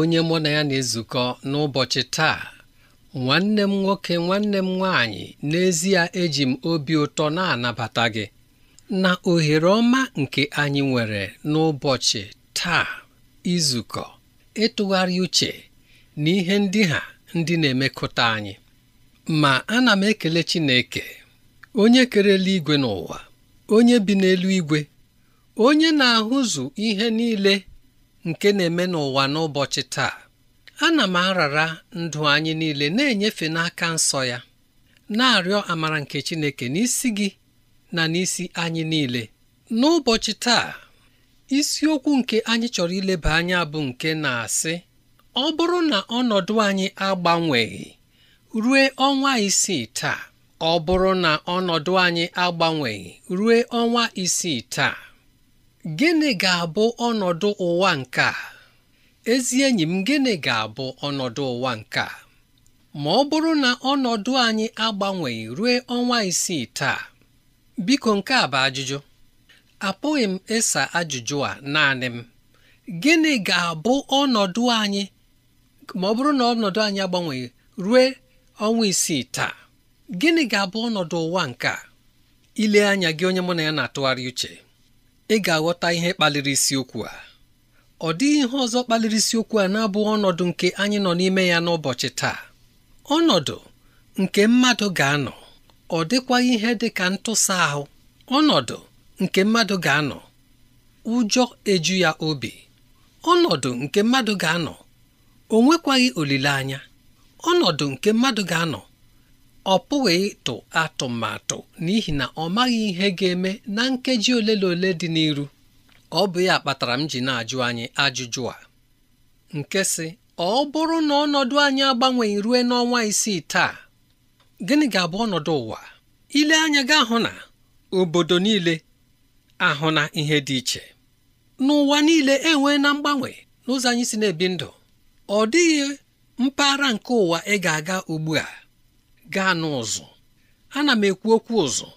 onye mụ na ya na-ezukọ n'ụbọchị taa nwanne m nwoke nwanne m nwaanyị n'ezie eji m obi ụtọ na-anabata gị na ohere ọma nke anyị nwere n'ụbọchị taa izukọ ịtụgharị uche na ihe ndị ha ndị na-emekọta anyị ma ana m ekele Chineke onye kerela igwe n'ụwa onye bi n'elu igwe onye na-ahụzụ ihe niile nke na-eme n'ụwa n'ụbọchị taa ana m arara ndụ anyị niile na-enyefe n'aka nsọ ya na-arịọ amara nke Chineke n'isi gị na n'isi anyị niile n'ụbọchị taa isiokwu nke anyị chọrọ ileba anya bụ nke na-asị ọ bụrụ na ọnọdụ anyị agbanweghị rue ọnwa isii taa ọ bụrụ na ọnọdụ anyị agbanweghị rue ọnwa isii taa gịnị ga-abụ ọnọdụ ụwa nke a ezi enyi m gịnị ga-abụ ọnọdụ ụwa nke a ma ọ bụrụ na ọnọdụ anyị agbanweghị ruo ọnwa isii taa biko nke a bụ ajụjụ apụghị m ịsa ajụjụ a naanị m gịnị ga-abụ ọnọdụ anyị ma ọ bụrụ na ọnọdụ anyị agbanweghị rue ọnwa isii taa gịnị ga-abụ ọnọdụ ụwa nke a ile anya gị onye mụ na ya na-atụgharị uche ị ga-aghọta ihe kpaliri isiokwu a ọ dịghị ihe ọzọ kpaliri isiokwu a na-abụ ọnọdụ nke anyị nọ n'ime ya n'ụbọchị taa ọnọdụ nke mmadụ ga-anọ ọ dịkwaghị ihe dị ka ntụsa ahụ ọnọdụ nke mmadụ ga-anọ ụjọ eju ya obi ọnọdụ nke mmadụ ga-anọ o olileanya ọnọdụ nke mmadụ ga-anọ ọ pụghị ịtụ atụmatụ n'ihi na ọ maghị ihe ga-eme na nkeji ole na ole dị n'iru ọ bụ ya kpatara m ji na-ajụ anyị ajụjụ a nke sị ọ bụrụ na ọnọdụ anyị agbanweghị rue n'ọnwa isii taa gịnị ga-abụ ọnọdụ ụwa ile anya gị ahụ na obodo niile ahụ na ihe dị iche n'ụwa niile enwee na mgbanwe n'ụzọ anyị si na-ebi ndụ ọ dịghị mpaghara nke ụwa ị ga-aga ugbu a gaa n'ụzụ ana m ekwu okwu ụzụ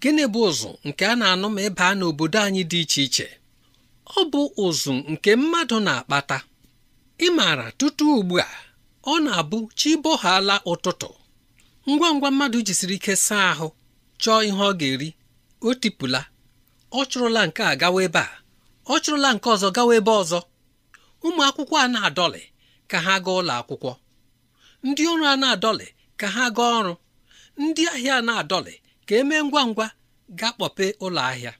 gịnị bụ ụzụ nke a na-anụ ma ịba n'obodo anyị dị iche iche ọ bụ ụzụ nke mmadụ na-akpata ị maara tutu ugbu a ọ na-abụ chi bohaala ụtụtụ ngwa ngwa mmadụ jisiri ike saa ahụ chọọ ihe ọ ga-eri o tipụla ọ chụrụla nke a gawa ebe a ọ chụrụla nke ọzọ gawa ebe ọzọ ụmụ akwụkwọ a na-adọlị ka ha gaa ụlọ akwụkwọ ndị ọrụ a na-adọlị ka ha gaa ọrụ ndị ahịa na-adọlị ka emee ngwa ngwa ga kpọpe ụlọ ahịa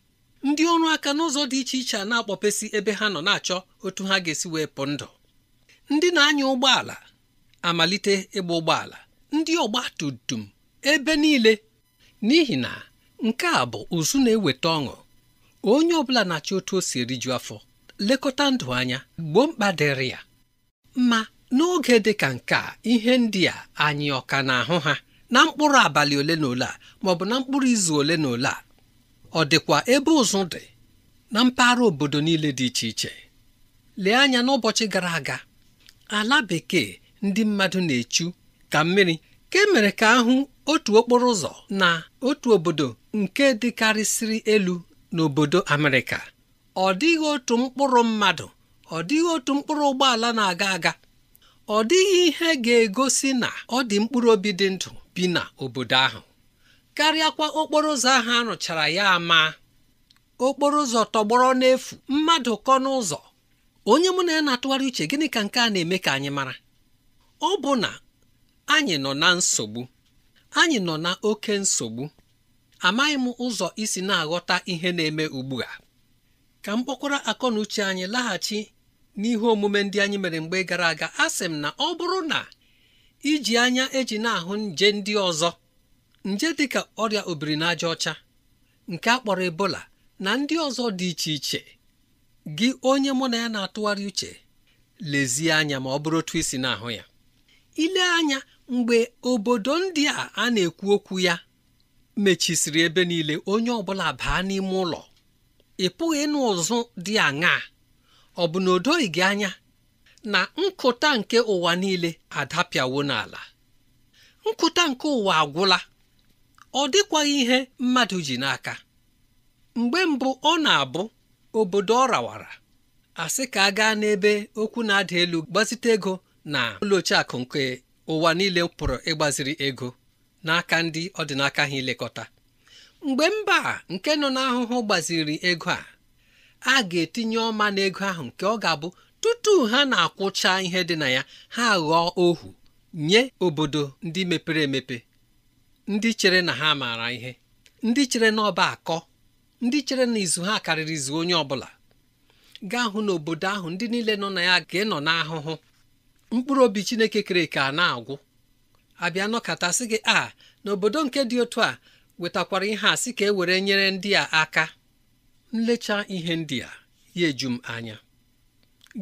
ndị ọrụ aka n'ụzọ dị iche iche a na akpọpesi ebe ha nọ na-achọ otu ha ga-esi wee pụ ndụ ndị na-anya ụgbọala amalite ịgba ụgbọala ndị ọgba tum tum ebe niile n'ihi na nke a bụ ụzụ na-eweta ọṅụ onye ọbụla na-achọ otu o si eriju afọ lekọta ndụ anya gboo mkpa dịrị ya Mma. n'oge dị ka nke a ihe ndị a anyị ọka na-ahụ ha na mkpụrụ abalị ole na ole a maọbụ na mkpụrụ izu ole na ole a ọ dịkwa ebe ụzụ dị na mpaghara obodo niile dị iche iche lee anya n'ụbọchị gara aga ala bekee ndị mmadụ na-echu ka mmiri ka emere ka ahụ otu okporo ụzọ na otu obodo nke dịkarịsịrị elu n'obodo Amerịka ọ dịghị otu mkpụrụ mmadụ ọ dịghị otu mkpụrụ ụgbọala na-aga aga ọ dịghị ihe ga-egosi na ọ dị mkpụrụ obi dị ndụ bi na obodo ahụ karịakwa okporo ụzọ ahụ arụchara ya ama okporo ụzọ tọgbọrọ n'efu mmadụ kọ n'ụzọ onye mụ na ya na-atụgharị uche gịnị ka nke a na-eme ka anyị mara ọ bụ na anyị nọ na nsogbu anyị nọ na oke nsogbu amaghị m ụzọ isi na-aghọta ihe na-eme ugbu a ka m kpọkwara akọ na uche anyị laghachi n'ihu omume ndị anyị mere mgbe gara aga a sị m na ọ bụrụ na iji anya eji na-ahụ nje ndị ọzọ nje dịka ọrịa obiri n'aja ọcha nke a kpọrọ ebola na ndị ọzọ dị iche iche gị onye mụ na ya na-atụgharị uche lezie anya ma ọ bụrụ otu isi na-ahụ ya ile anya mgbe obodo ndị a a na-ekwu okwu ya mechisiri ebe niile onye ọbụla baa n'ime ụlọ ị pụghị ịnụ ụzụ dị aṅaa ọ bụ na anya na nkụta nke ụwa niile adapịawo n'ala nkụta nke ụwa agwụla ọ dịkwaghị ihe mmadụ ji n'aka mgbe mbụ ọ na-abụ obodo ọ rawara asị ka a gaa n'ebe okwu na-ada elu gbazite ego na ụlọ akụ nke ụwa niile pụrụ ịgbaziri ego n'aka ndị ọdịnaka ha ilekọta mgbe mba nke nọ n'ahụhụ gbaziri ego a a ga-etinye ọma n'ego ahụ nke ọ ga-abụ tutu ha na-akwụcha ihe dị na ya ha ghọọ ohu nye obodo ndị mepere emepe ndị chere na ha maara ihe ndị chere na ọba akọ ndị chere na izu ha karịrị izu onye ọbụla gaa hụ n'obodo ahụ ndị niile nọ na ya ga-enọ n'ahụhụ mkpụrụ obi Chineke kere ka na-agwụ abịa nọkọtasị gị a n'obodo nke dị otu a wetakwara ihe a sị ka e were nyere ndị a aka nlecha ihe ndị a ya eju m anya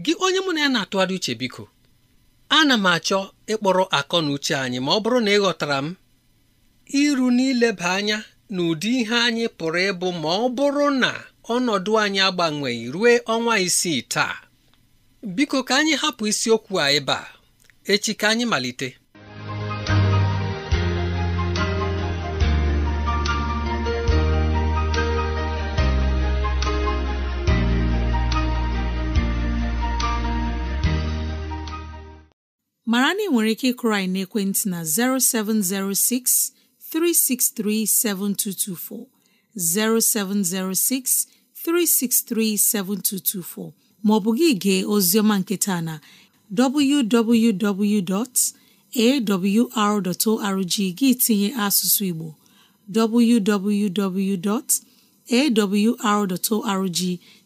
gị onye mụ na ya na-atụgharị uche biko ana m achọ ịkpọrọ akọ na uche anyị ma ọ bụrụ na ị ghọtara m iru n'ileba anya na ụdị ihe anyị pụrụ ịbụ ma ọ bụrụ na ọnọdụ anyị agbanweghị ruo ọnwa isii taa biko ka anyị hapụ isiokwu a ebe a echi ka anyị malite mara na ị nwere ike ịkụrụ anyị n'ekwentị na 0706 363 7224 0706 363 7224 maọbụ gị gee oziọma nketa na www.awr.org gị tinye asụsụ Igbo www.awr.org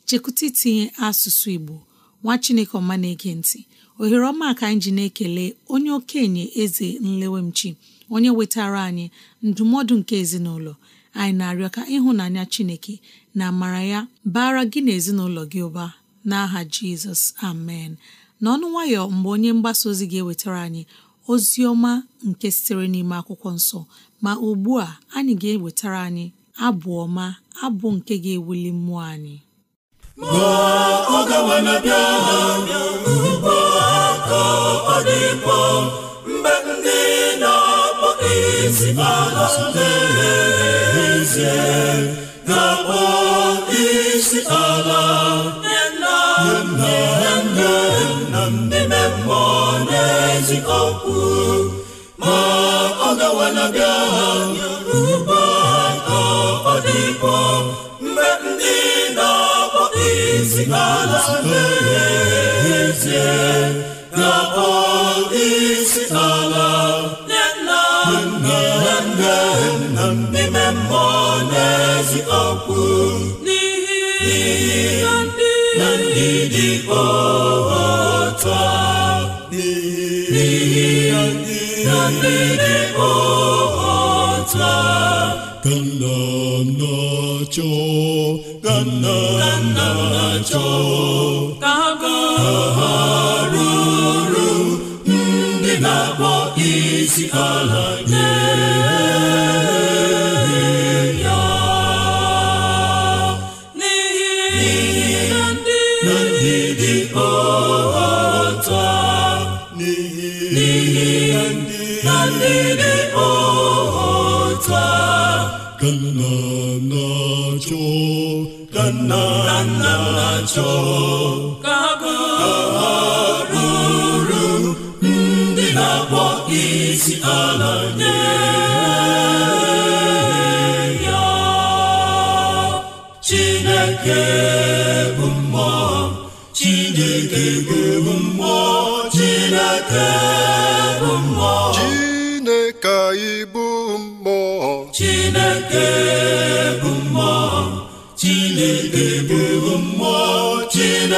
chekwụta itinye asụsụ Igbo nwa Chineke ọma na-ege ntị ohere ọma ka anyị ji na-ekele onye okenye eze nlewemchi onye wetara anyị ndụmọdụ nke ezinụlọ anyị na-arịọ ka ịhụnanya chineke na amara ya bara gị na ezinụlọ gị ụba n'aha jizọs amen n'ọnụ nwayọ mgbe onye mgbasa ozi ga-ewetara anyị ozi ọma nke sitere n'ime akwụkwọ nsọ ma ugbu a anyị ga-ewetara anyị abụ ọma abụ nke ga-ewuli mmụọ anyị ma ọ gawa na bịa agha ugbu a ka ndị na-akpọ isi ala n'ezie ga-akpọ isi ala nne na nna nne nna ndị mmụọ n'eziokwu. ma ọ gawa na bịa agha ugbu a n'ala n'ezie na-akpọ ala na ndị dị otu a n'ihi na ndị dị otu a cho na cho ka ga ha ru ru ndị na-akpọ isi ala nye ya n'ihi ndị dị ọta ka nna nna chọọ ka ha ndị na-akpọ isi ala nye ya Chineke bụ mmụọ Chineke bụ mmụọ Chineke bụ mmụọ Chineke bụ mmụọ Chineke bụ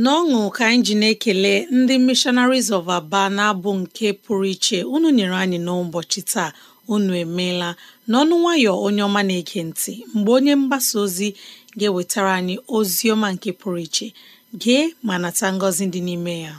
n'ọṅụ ka anyị ji na-ekele ndị Missionaries of Aba na-abụ nke pụrụ iche unu nyere anyị n'ụbọchị taa unu emeela n'ọnụ nwayọ onye ọma na-ege ntị mgbe onye mgbasa ozi ga-ewetara anyị ozi ọma nke pụrụ iche gee ma nata ngọzi dị n'ime ya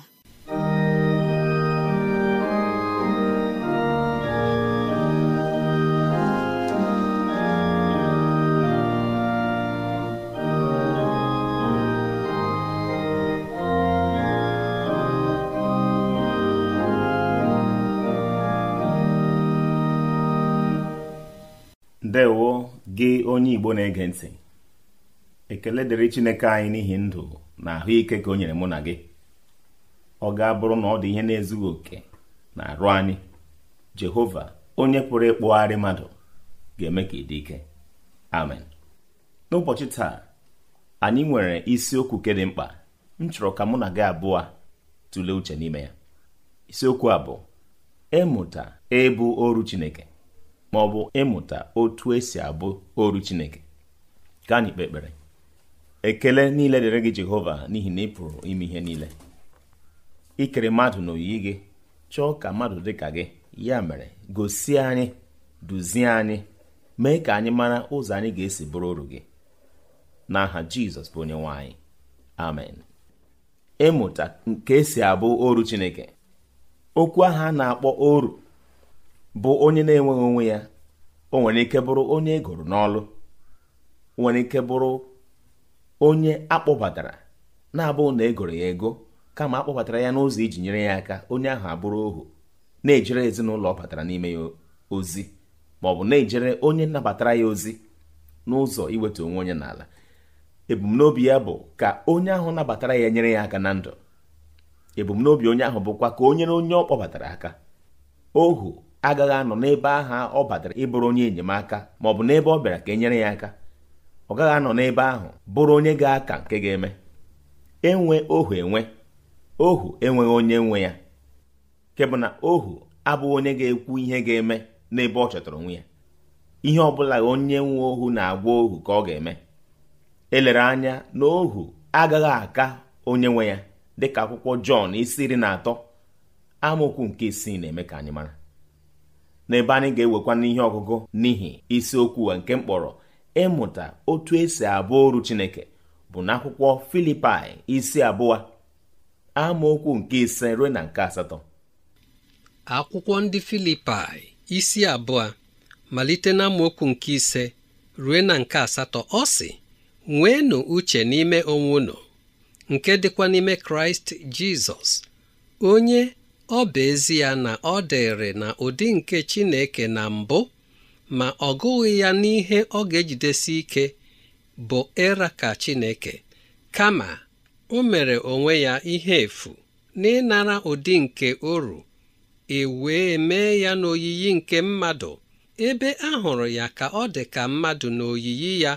ndewo gị onye igbo na-ege ntị ekele dịrị chineke anyị n'ihi ndụ na ahụike ka o nyere mụ na gị ọ ga-abụrụ na ọ dị ihe na-ezughị oke na arụ anyị jehova onye pụrụ ịkpụgharị mmadụ ga-eme ka ị dị ike amen n'ụbọchị taa anyị nwere isiokwu ke dị mkpa m chọrọ ka mụ na gị abụọ tụlee uche n'ime ya isiokwu abụọ ịmụta ịbụ oru chineke ma ọ bụ ịmụta otu esi abụ oru Chineke ka anyị kpe ekpere ekele niile dịrị gị Jehova n'ihi na ị pụrụ ime ihe niile ikere mmadụ na oyiyi gị chọọ ka mmadụ dị ka gị ya mere gosi anyị duzie anyị mee ka anyị mara ụzọ anyị ga-esi bụrụ oru gị n'aha Jizọs bụ onye amen ịmụta nke esi abụ oru Chineke okwu aha a na-akpọ oru bụ onye na-enweghị onwe ya o nwere ike bụrụ onye egoro n'ọlụ nwere ike bụrụ onye akpọbatara na-abụ na egoro ya ego kama akpọbatara ya n'ụzọ iji nyere ya aka onye ahụ abụrụ ohu na-ejere ezinụlọ ọ batara n'ime ya ozi ma ọ bụ na-ejere onye nabatara ya ozi n'ụzọ iweta onwe onye n'ala ebumnobi ya bụ ka onye ahụ nabatara ya nyere ya aka na ndụ ebumnobi onye ahụ bụkwa ka onye na onye ọ kpọbatara aka ohu agaghị anọ n'ebe ahụ ọ batara ịbụrụ onye enyemaka ma ọ bụ n'ebe ọ bịara ka e nyere ya aka ọ gaghị anọ n'ebe ahụ bụrụ onye ga-aka nke ga-eme enwe ohu enwe ohu enweghị onye nwe ya nke bụ na ohu abụghị onye ga-ekwu ihe ga-eme n'ebe ọ chọtara onwe ya ihe ọbụla onye nwe ohu na-agwa ohu ka ọ ga-eme elere anya na ohu agaghị aka onye nwe ya dịka akwụkwọ Jọn isi iri na atọ amụkwu nke isii na-eme ka anyị mara n'ebe anyị ga-ewekwa n'ihe ọgụgụ n'ihi isiokwu nke mkpọrọ ịmụta otu esi abụ oru Chineke bụ n'akwụkwọ Filipaị isi abụọ amaokwu nke ise ruo na nke asatọ akwụkwọ ndị Filipaị isi abụọ malite na amaokwu nke ise ruo na nke asatọ ọ sị nweenụ uche n'ime onwe unu nke dịkwa n'ime Kraịst Jizọs onye ọ bụ ezi ya na ọ dịrị na ụdị nke Chineke na mbụ ma ọ gụghị ya n'ihe ọ ga-ejidesi ike bụ ịra ka Chineke kama o mere onwe ya ihe efu n'ịnara ụdị nke oru e wee mee ya n'oyiyi nke mmadụ ebe a hụrụ ya ka ọ dị ka mmadụ n'oyiyi ya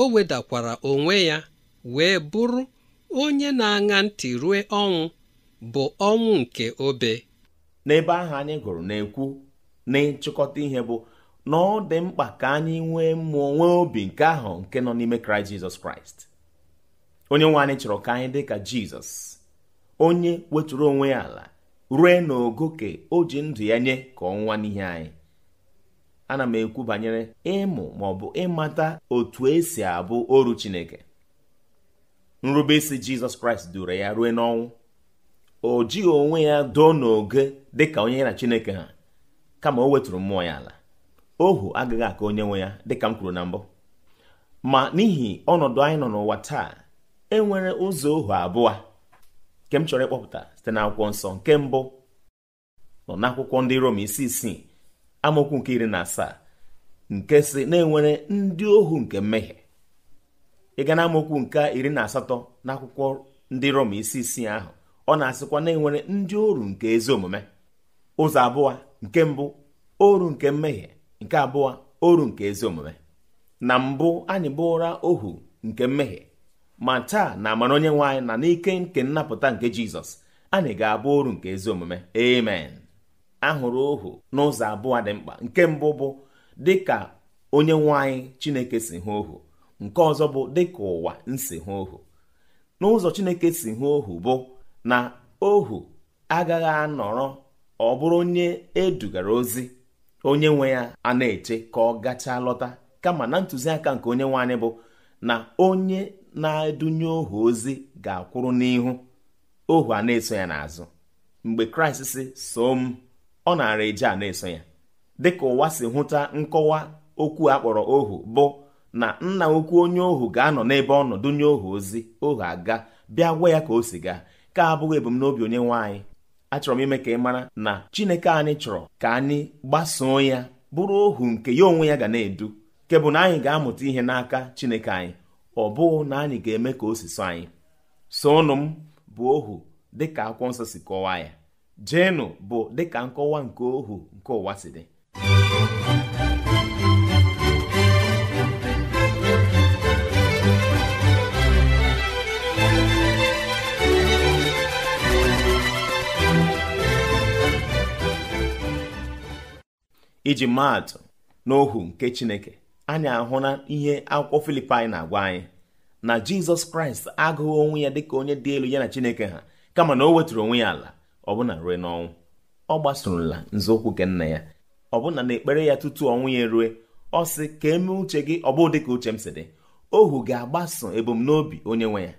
o wedakwara onwe ya wee bụrụ onye na-aṅa ntị rue ọnwụ bụ ọnwụ nke obe n'ebe ahụ anyị gụrụ na-ekwu na ihe bụ na ọ dị mkpa ka anyị nwee mmụọ nwee obi nke ahụ nke nọ n'ime kraịst jizọs kraịst onye nwe anyị chọrọ ka anyị dị ka jizọs onye wetụrụ onwe ya ala rue n'ogo ka o ji ndụ ya nye ka ọnwa n'ihe anyị ana m ekwu banyere ịmụ ma ọ bụ ịmata otu esi abụ oru chineke nrubeisi jizọs kraịst duru ya rue n'ọnwụ o jighị onwe ya doo n'oge dịka onye ya na chineke ha kama o wetụrụ mmụọ ya ala ohu agaghị aka onye nwe ya dịka m kwuru na mbụ ma n'ihi ọnọdụ anyị nọ n'ụwa taa e nwere ụzọ ohu abụọ nke m chọrọ ịkpọpụta site n'akwụkwọ nsọ nke mbụ nọ n'akwụkwọ ndị Rom isi isii amụkwu nke iri na asaa nke si na enwere ndị ohu nke mmehie ịga na amaokwu nke iri na asatọ n'akwụkwọ ndị Rom isi isii ahụ ọ na-asịkwa na enwere ndị oru nke ezi omume ụzọ abụọ nke mbụ oru nke mmehie nke abụọ oru nke ezi omume na mbụ anyị bụra ohu nke mmehie ma taa na amara onye nwe anyị na n'ike nke nnapụta nke jizọs anyị ga-abụ oru nke ezi omume amen ahụrụ ohu n'ụzọ abụọ dị mkpa nke mbụ bụ dịka onye nwe anyị chineke si hụ ohu nke ọzọ bụ dịka ụwa nsi hụ ohu n'ụzọ chineke si hụ ohu bụ na ohu agaghị anọrọ ọ bụrụ onye edugara ozi onye nwe ya a na-eche ka ọ gachaa lọta kama na ntụziaka nke onye nwe bụ na onye na-edunye ohu ozi ga-akwụrụ n'ihu ohu a na-eso ya n'azụ mgbe kraịst si soo m ọ nara eje a na-eso ya dịka ụwa si hụta nkọwa okwu akpọrọ ohu bụ na nna ukwu onye ohu ga-anọ n'ebe ọ nye ohu ozi ohu aga bịa gwa ya ka o si gaa nke abụghị ebumnobi onye nwe anyị achọrọ m ime ka ị mara na Chineke anyị chọrọ ka anyị gbasoo ya bụrụ ohu nke ya onwe ya ga na-edu nke na anyị ga-amụta ihe n'aka Chineke anyị ọ bụghị na anyị ga-eme ka o anyị sonụ m bụ ohu dịka akwụkwọ nsọ si kọwaa ya jenu bụ dịka nkọwa nke ohu nke ụwa si dị iji maatụ n'ohu nke chineke anyị ahụla ihe akwụkwọ filipaị na-agwa anyị na jizọs kraịst agụghị onwe ya dịka onye dị elu ya na chineke ha kama na o wetụrụ onwe ya ala ọbụna rue n'ọnwụ ọ gbasorola nzọụkwụ nke nna ya ọbụna na ekpere ya tutu ọnwụ ya erue ọ sị ka eme uche gị ọ dịka uche m si dị ohu ga-agbaso ebumnobi onye nwe ya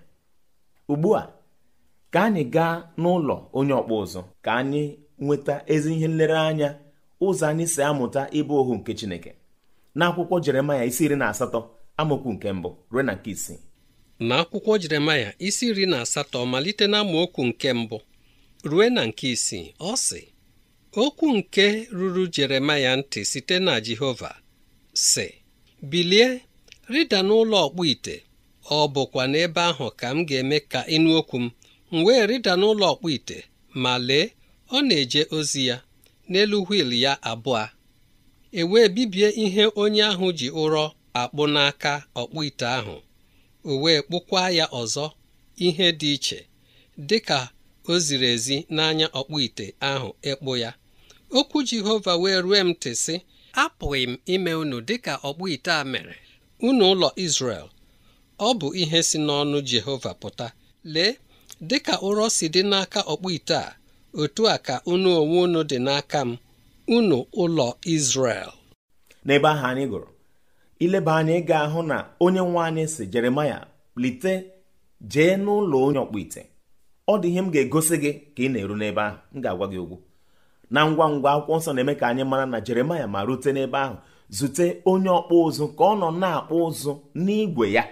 ugbu a ka anyị gaa n'ụlọ onye ọkpụ ụzụ ka anyị nweta ezi ihe nlereanya ụzọ anyị si amụta ịbụ ohu nke Chineke n'akwụkwọ Jeremaya isi iri na asatọ amaokwu nke mbụ ruo na nke isii n'akwụkwọ Jeremaya isi iri na asatọ malite na amaokwu nke mbụ rue na nke isii ọ sị okwu nke ruru Jeremaya ntị site na Jehova sị bilie rịda n'ụlọ ọkpụ ite ọ bụkwa n'ebe ahụ ka m ga-eme ka ịnụ okwu m m wee rịda n'ụlọ ọkpụ ite ma lee ọ na-eje ozi ya n'elu wiil ya abụọ e wee bibie ihe onye ahụ ji ụrọ akpụ n'aka ọkpụ ite ahụ o wee kpụkwa ya ọzọ ihe dị iche dị ka o ziri ezi n'anya ọkpụ ite ahụ ịkpụ ya okwu Jehova wee rue m ntị sị apụghị m ime unu dịka ọkpụ ite a mere unu ụlọ Izrel ọ bụ ihe si n'ọnụ Jehova pụta lee dịka ụrọ si dị n'aka ọkpụ ite a otu a ka unu onwe unu dị n'aka m unu ụlọ Izrel n'ebe ahụ anyị gụrụ ileba anya ị ga-ahụ na onye nwe anyị si Jeremaya lite jee n'ụlọ onye ọkpụ ite ọ dị ihe m ga-egosi gị ka ị na-eru n'ebe ahụ m ga-agwa gị ugwu. na ngwa ngwa akwụkwọ nsọ na-eme ka anyị mara na Jeremaya ma rute n'ebe ahụ zute onye ọkpụ ụzụ ka ọ nọ na-akpụ ụzụ n'igwe ya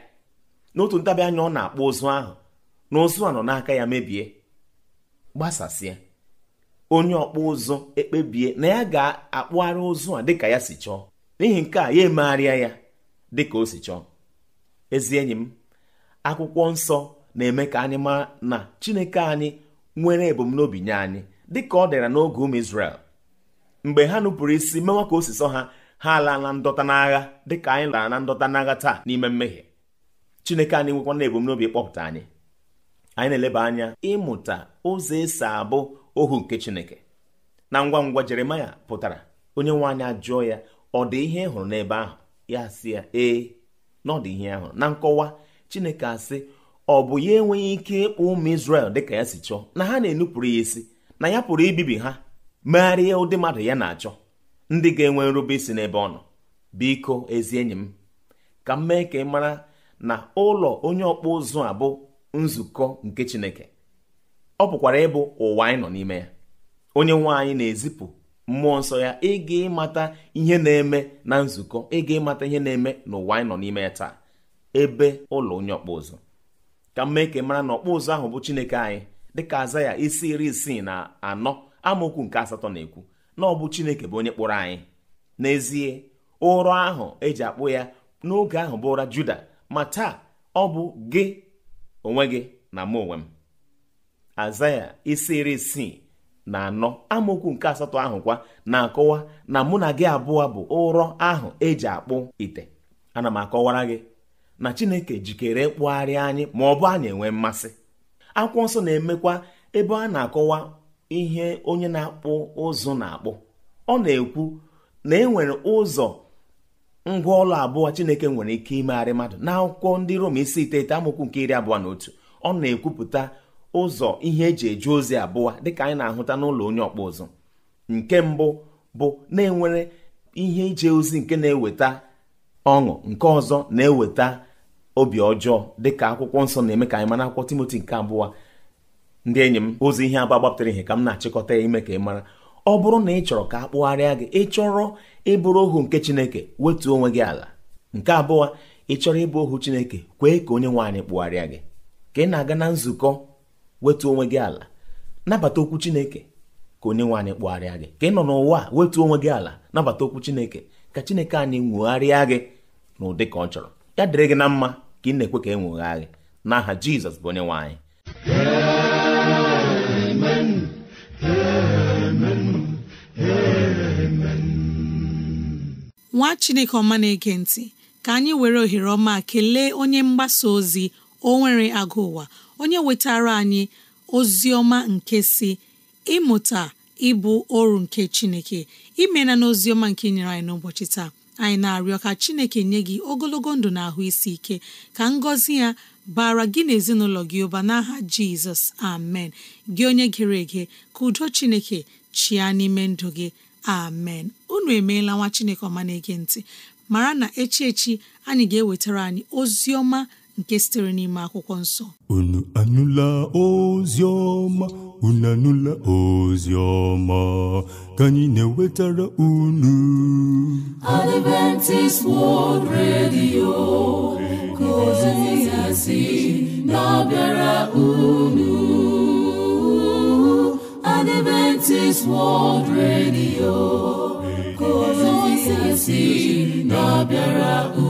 n'otu ntabi anya ọ na-akpụ ụzụ ahụ na ụzụ a nọ n'aka ya mebie gbasasịa onye ọkpụ ụzụ ekpebie na ya ga-akpụgharị ụzụ a dịka ya si chọọ n'ihi nke a ya emegharịa ya dịka o si chọọ ezi enyi m akwụkwọ nsọ na-eme ka anyị mara na chineke anyị nwere ebumnobi nye anyị dịka ọ dịra n'oge ụmụ Izrel mgbe ha nupụrụ isi mewa ka o ha ha ala na ndọta n'agha dịka anyị lara na ndọta n'agha taa n'ime mmehie chineke anyị nwekwana ebumnobi kpọpụta anyị anyị na-eleba anya ịmụta ụzọ esi abụ ohu nke chineke na ngwa ngwa jeremaya pụtara onye nwe anyị ajụọ ya ọ dị ihe hụrụ n'ebe ahụ ya si ya ee na ihe ahụ na nkọwa chineke asị ọ bụ ya enweghị ike ịkpọ ụmụ dị dịka ya si chọọ na ha na-enupụrụ ya isi na ya pụrụ ibibi ha megharịa ụdị mmadụ ya na-achọ ndị ga-enwe nrube isi n'ebe ọ nọ biko ezi enyi m ka m mee ka ị mara na ụlọ onye ọkpụ ụzụ a bụ nzukọ nke Chineke ọ pụkwara ịbụ ụwa anyị nọ n'ime ya onye nwe anyị na-ezipụ mmụọ nsọ ya ịga ịmata ihe na-eme na nzukọ ịga ịmata ihe na-eme na ụwa anyị nọ n'ime ya taa ebe ụlọ onye ọkpụ ụzụ ka m mara na ọkpụ ahụ bụ chineke anyị dịka aza ya isi iri isii na anọ amaokwu nke asatọ na-ekwu na ọ bụ chineke bụ onye kpụrụ anyị n'ezie ụrọ ahụ eji akpụ ya n'oge ahụ bụ ụra juda ma taa ọ bụ gị onwe gị na mụ onwe m azaya isi iri isii na anọ amokwu nke asatọ ahụ kwa na-akọwa na mụ na gị abụọ bụ ụrọ ahụ eji akpụ ite ana m akọwara gị na chineke jikere ịkpụgharị anyị ma ọ bụ anyị enwe mmasị akwụkwọ nsọ na-emekwa ebe a na-akọwa ihe onye na-akpụ ụzụ na-akpụ ọ na-ekwu na e nwere ụzọ ngwa ọlụ abụọ chineke nwere ike imegharị mmadụ na akwụkwọ ndị rom isi iteghete amokwu nke iri abụọ na otu ọ na-ekwupụta ụzọ ihe eji eje ozi abụọ dịka anyị na-ahụta n'ụlọ onye ọkpụ ụzụ nke mbụ bụ na-enwere ihe ije ozi nke na-eweta ọṅụ nke ọzọ na-eweta obi ọjọọ dịka akwụkwọ nsọ na-eme ka anyị mara akwụkwọ Timoti nke abụọ ndị enyi m ozi ihe agba gbapụtara ihe ka m na-achịkọta ya ime ka ị mara ọ bụrụ na ị chọrọ ka a kpụgharịa gị ị chọrọ ịbụrụ ohu nke Chineke wetuo onwe gị ala nke abụọ ị chọrọ ịbụ ohu Chineke kwee ka onye nwe anyị kpụgharịa gị ka ị na-aga na nzukọ wetu onwe gị ala nabata okwu chineke ka onye nwe anyị kpụgharịa gị ka ị nọ n'ụwa wetu onwe gị ala nabata okwu chineke ka chineke anyị nwegharịa gị n'ụdị ka ọ chọrọ ya dịrị gị na mma ka ị na-ekwe ka e nwegha gị n'aha jizọs bụ onye nwe anyị nwa chineke ọma na-ege ntị ka anyị were ohere ọma kelee onye mgbasa ozi o nwere agụ ụwa onye wetara anyị ozi ọma nke si ịmụta ịbụ ọrụ nke chineke imena na oziọma ọma nke nyere anyị n'ụbọchị taa anyị na-arịọ ka chineke nye gị ogologo ndụ na ahụ isi ike ka ngọzi ya bara gị na ezinụlọ gị ụba n'aha jizọs amen gị onye gere ege ka udo chineke chịa n'ime ndụ gị amen unu emeela nwa chineke ọma na-ege ntị mara na echi echi anyị ga-ewetara anyị ozi ọma nke sitere n'ime akwụkwọ nsọ unu anụla ozi ọma unu anụla ozi ọma ka anyị na-ewetara unu Adventist World Radio ka ozi ya na-abịara unu Adventist World Radio ka ozi ya na-abịara unu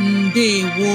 ndewo